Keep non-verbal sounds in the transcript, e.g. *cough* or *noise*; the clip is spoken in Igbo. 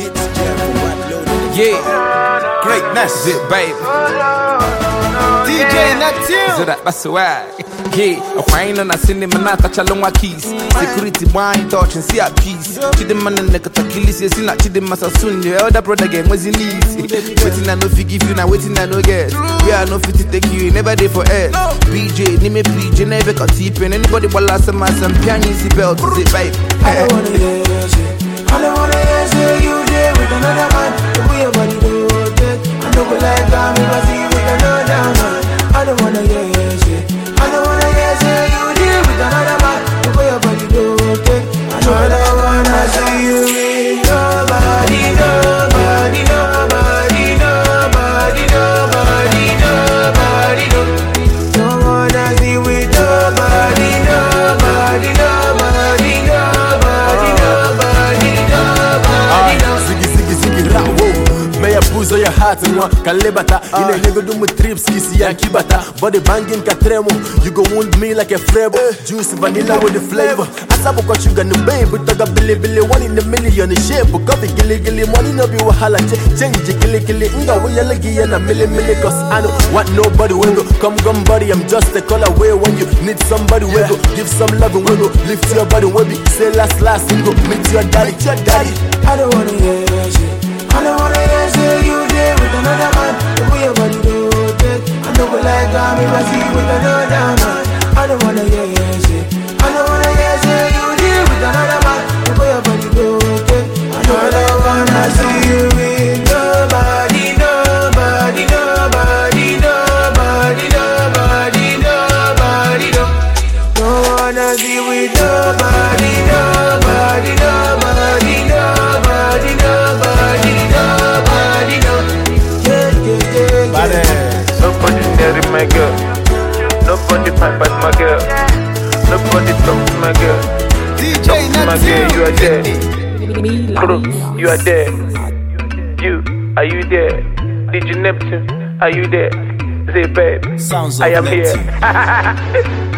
It's Jeff White loaded. Yeah, greatness, it, baby. DJ Natil. Zora Baswag. Yeah, and cinema na kachalongwa keys. Security wine touch and see a peace. na nekatakilisi yesi na chidema sasuni. Your elder brother was in easy. Waiting I you, now waiting I get. We are no fit take you, never there for BJ, name me BJ, never got deep in anybody. belt. babe. I Dame Uzo ya heart nwa ka lebata Ị na trips isi ya nkibata Body banging ka You go wound me like a frebo eh. Juice vanilla with the flavor Asabụkwa sugar na babe Toga bilibili one in a million shape Coffee gili gili money no be wahala Change gili gili nga wuyele ya na mili mili Cause I know what nobody will go Come come buddy I'm just a call away When you need somebody will go Give some love and will go Lift your body will be you know that I don't wanna hear you. Nobody fight but my girl. Nobody talk to my girl. DJ talk to my girl, you are there. Crew, you are there. You, are you there? DJ Neptune, are you there? Say, babe, Sounds I am here. *laughs*